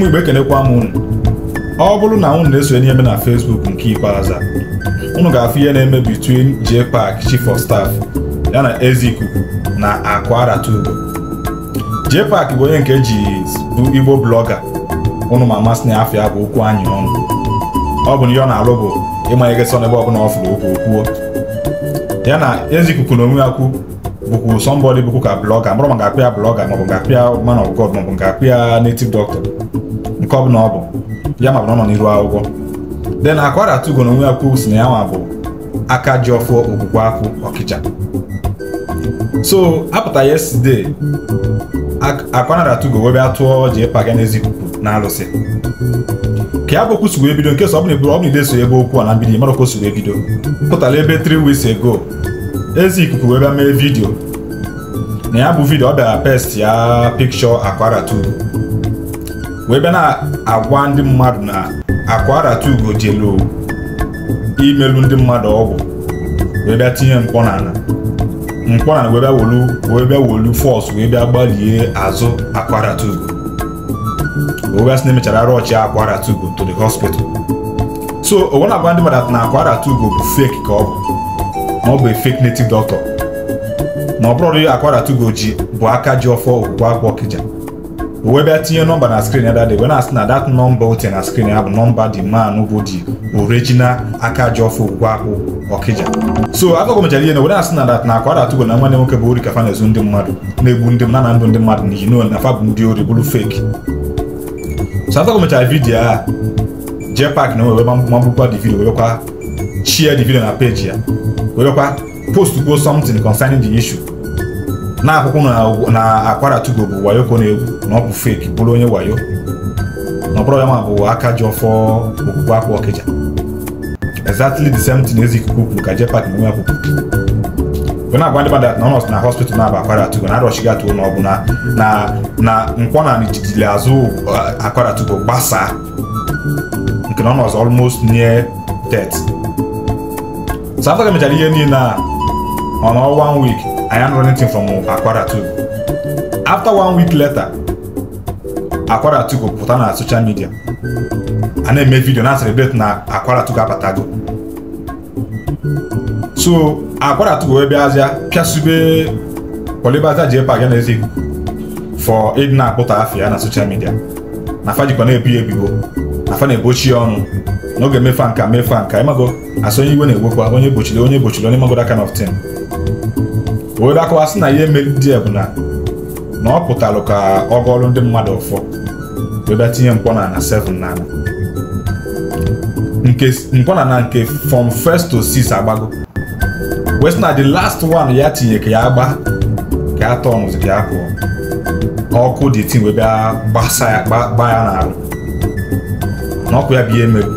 ụmụ igbo ekenekwa m unu ọ bụrụ na unu na-esonye n'ihe na Facebook nke ikpeazụ unu ga-afụ ihe na-eme between Jpac Chief of Staff ya na ikuku na Akwara Tugo Jpac bụ onye nke ji bụ Igbo blọga ụnụ ma amasị na afịa bụ okwu anyị ọnụ ọ bụ ihe ọ na-alụ bụ ịmanye gị ebe ọ bụla ọ fụrụ okwu okwuo ya na ikuku na onwe ya kwu bụkwu sọmbọdị bụkwu ka blọga mụrụ ma ga ya blọga maọbụ ga-akpịa man of God maọbụ ga-akpịa native doctor nke ọ bụla ọ bụ ya ma bụrụ nọ n'iru akwụkwọ de na akwara atụgo na onwe ya kwuo si na ya nwa bụ aka ji ọfụ okwukwe akwụ ọkịcha so apụta yeside akwanara atụgo webe atụọ ji ịpaga n'ezi kwukwu na alụsị ka ya bụ okwu sugbo ebido nke sọ ọ bụla eburu ọ bụla ideso ebe okwu a na mbido mara okwu sugbo ebido pụtara ebe tri weeks ago ezi ikuku wee bịa mee vidio na ya bụ vidio ọ bịara pest ya pikchọ akwara atụgo wee bịa na-agwa ndị mmadụ na akwarata ugo jelu imelu ndị mmadụ ọgwụ wee bịa tinye mkpọ n'ala mkpọ n'ala wee bịa wolu wee bịa wolu fọs wee bịa gbalie azụ akwarata ugo wee bịa sị na emechara arụ ọchị akwarata ugo to the hospital so onwe na-agwa ndị mmadụ na akwarata ugo bụ fake ka ọ bụ na ọ bụ fake native doctor na ọ bụrụ akwarata ugo ji bụ aka ji ọfọ okwukwe akwa ọkịja webe tinye nọmba na skrin ya dade wee na-asị na dat nọmba o tinye na skrin ya bụ nọmba dị man bụ dị original aka ji ọfụ ụgwọ ahụ ọkịja so akụkọ mechara ihe na wee na-asị na dat na akwa datugo na nwanne nwoke bụ ori kafa na-ezu ndị mmadụ na-egbu ndị na na ndụ ndị mmadụ na ino na fa bụ ndị ori bụrụ feki so akụkọ mechara vidiyo a jee pak na wee magbukwa dị vidiyo werekwa chia dị vidiyo na peji ya werekwa post kwuo something concerning the issue na-akwụkwọ na akwaratugo bụ wayoko na-egwu na ọ bụ fake bụrụ onye wayo na ọbụrụ ya ma bụ aka ji ọfọ okpukpe akwa ọkịja exactly the same thing ezi ikuku kwuru ka jepak na onwe ya kwukwu we na-agwa ndị mmadụ na nọọsụ na hospital na-aba akwaratugo na arọchighị atụ na ọ bụ na nkwọ na nijidili azụ uh, akwaratugo gbasaa nke na ọ nọzọ almost near death so afọ ka mechara ihe niile a ọ nọ one week I am running team from Akwara Togo. After one week later, Akwara pụta na social media a na-eme vidio na celebrate na Akwara Togo apatago so Akwara Togo wee bịazịa pịasube Polibaza Jpa na Ezekwu for ịdị na-akpụta afọ ya na social media na fa jikwa na-ebi ebibo na fa na-egbochi ọnụ n'oge mefa nka mefa nka ịmago asonye iwe na-egbokwa onye gbochiri onye gbochiri onye magoda kind of thing wee akọwasị na ihe mere ndị a bụ na na ọ pụtara ka ọ gọọrụ ndị mmadụ ụfọ wee tinye mkpọ na na 7 na nke mkpọ na nke from first to 6 agbago wee sị na the last one ya tinye ka ya gba ka ya tọnụzi ka ya pụọ ọkụ dị tin wee bịa gbasa ya gba ya n'arụ na ọkụ ya bụ ihe emerụ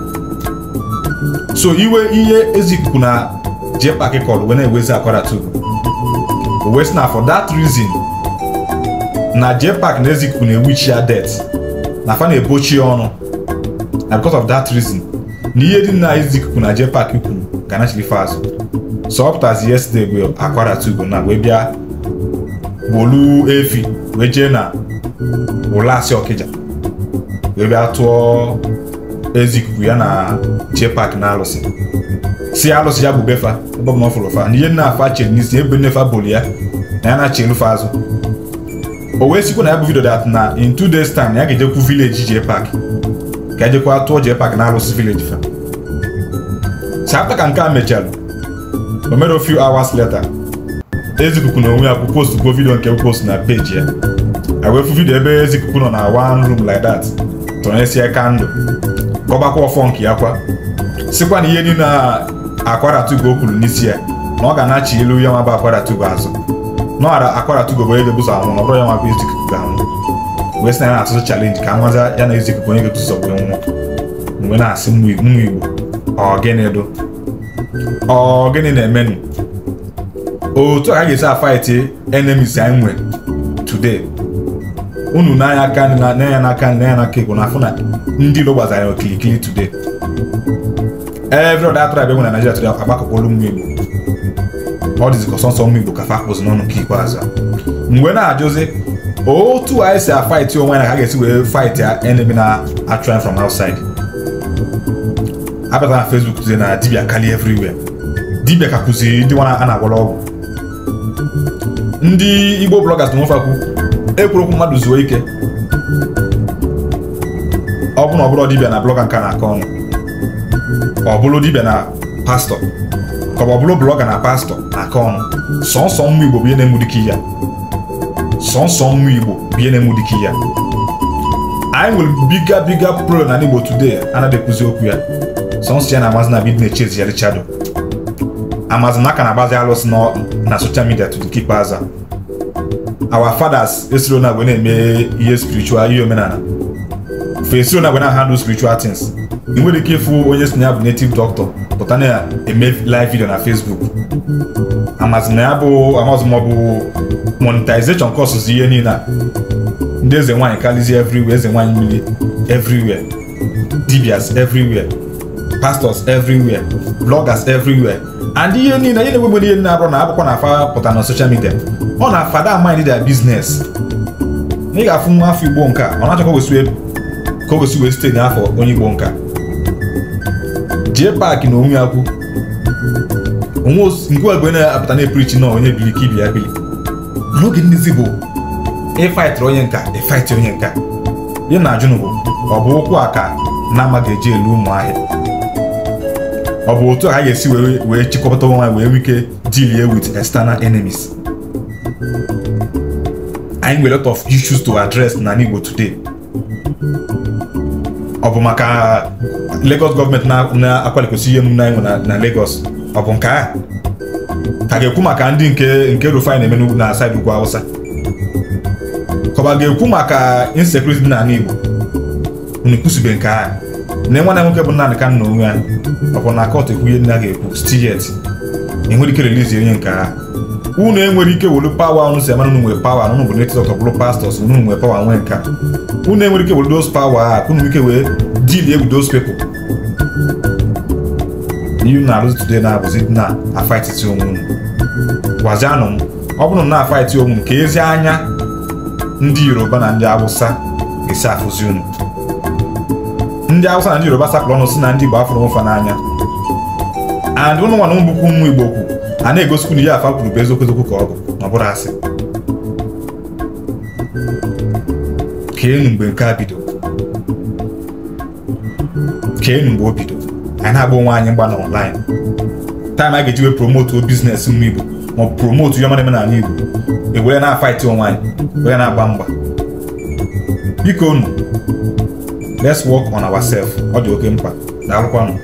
so iwe ihe ezikuku na jepakị kọrọ wee na-ewezi akwara tubu wee sị na for that reason na JPAC na Ezekwu na-ewichi ya det na fa na-ebochi ya ọnụ na because of that reason na ihe dị na Ezekwu na JPAC kwuru ga nachilife fast so ọ pụtazi yesterday wee akwaratugo na wee bịa gbolu efi wee jee na asị Okija wee bịa tụọ ezi ya na jee pak na arụsị si alụsị ya bụ befa ebe ọ fụrụ fa na ihe nna afa chere n'isi ebe nne fa ya na ya na-achị elufe azụ o wee sikwa na ya bụ vidio dat na in two days time ya ga-ejekwu vileji jee pak ka ejekwa tụọ jee pak na alụsị vileji fa si afta ka nke a mechara o mere few hours later ezikuku na onwe ya bụ postgbo vidio nke post na peji ya ewefu vidio ebe ezikuku nọ na one room like that tọnyesie kandụ. ka ọ ọfọ nke ya kwa sikwa na ihe niile a akwaratugo o kwuru n'isi ya na ọ ga-anachi elu ya nwa bụ akwaratugo azụ n'ọghara akwaratugo bụ onye ga-ebuzo anwụ na ọbụrụ ya nwa bụ izu ikuku anwụ wee sị na na-atụtụ chalenji ka nwaza ya na izu onye ga-etuzo wee nwụọ mgbe na-asị mmụ igbo ọgịnị dụ ọgịnị na-emenụ otu a ka ga-esi afaiti enemis anyị nwere today unu n'anya aka n'anya n'aka n'anya n'aka igbo na afụ na ndị Igbo gbazara okilikili today every other tribe enwe na Nigeria today agbakọkwala ụmụ Igbo ọ dịzikọ sọnsọ ụmụ Igbo ka fa akpụzi n'ọnụ nke ikpeazụ mgbe na-ajụzi otu anyị si afaịtị onwe na ha ga-esi wee faịtị enemy na-atụrụ from outside abịata na fesbuk tụzie na dibia kali everywhere dibia ka kụziri ndị nwa a na-agwọrọ ọgwụ ndị Igbo bloggers na nwefe ekwu ekwurekwu mmadụ zuo ike ọbụ na ọbụrụ na blọga nka na-akọ ọnụ ọ bụrụ na pastọ ka ọ bụrụ blọga na pastọ na-akọ ọnụ sọnsọ mmụ igbo bie na-emu ya sọnsọ mmụ igbo bie na-emu ya anyị nwere biga biga pro na igbo today anaghị okwu ya sọnsọ ya na amazina bid na-echezi ya richado amazina aka na-agbazi alụsị na soshal midia to keep fathers esiro na eme ihe spirichual ihe omenala esi na gwana handle spiritual things ị nwere ike ịfụ onye si na ya bụ native doctor pụta na eme live video na Facebook amazina ya bụ amazụ ma ọ bụ monetization costs ihe niile a ndị eze nwaanyị kalizi everywhere eze nwaanyị mmiri everywhere dibias everywhere pastors everywhere bloggers everywhere and ihe niile ihe na-enwegbe ihe na-abụrụ na akwụkwọ na-afa pụta na social media ọ na-afada amaghị their business ị ga-afụ nwa afọ Igbo nke a ọ na-achọkwa wesụ ka o gosi wee site n'afọ onye igbo nka jee paakị na onwe akwụ onwe na-apụta na-epirichi na onye bili ka ibi ya bili n'oge ndịzi bụ ịfaịtịrị onye nka ịfaịtị onye nka ya na ajụnụ bụ ọ bụ ụkwụ a ka na amaghị eji elu ụmụ ahịa ọ bụ otu a ga-esi wee chịkọta onwe wee nwee ike deal with external enemies anyị nwere lot of issues to address na Igbo today ọ bụ maka Lagos gọọmenti na akwalikwesị ihe emume anyị na Lagos ọ bụ nke a ga-ekwu maka ndị nke nke Rufai na-eme na saịdị ugwu Awụsa ka ọ ga-ekwu maka insecurity dị n'ala Igbo unu kwụsịbe nke a na nwana nwoke bụ naanị ka nna onwe ya ọ bụ na kọt ekwu ihe ndị a ga-ekwu stiyet enwere ike relizi onye nke unu enwere ike welu pawa unu si amara unu nwere pawa na unu bụ netizọk ọbụrụ pastọs unu nwere pawa nwee nka unu enwere ike welu dos pawa a ka nwere ike wee dili egwu dos pepụl n'ihu na-arụzi today na-abụzi na afaititi onwe unu gwazianụ m ọ bụrụ na na-afaiti onwe m ka ezi anya ndị yoruba na ndị awụsa ga esi afụzi unu ndị awụsa na ndị yoruba sapụrụ ọnụ si na ndị igbo afụrụ nfa n'anya and ụnụ nwa na ụmụ bụkwa ụmụ igbo kwu a na-egosikwu na ihe afa kwuru bụ eziokwu eziokwu ka ọ bụ na ọ bụrụ asị keenu mgbe mgbe o bido anyị na-agba onwe anyị mgba na ọnlaịn taịm a ga-eji wee promotuo bizinesi mma igbo ma ọ bụ promotu ihe ọma na-eme igbo ewere na-afaịtị onwe anyị were na-agba mgba biko unu let's work on ourselves ọ dị oke mkpa nụ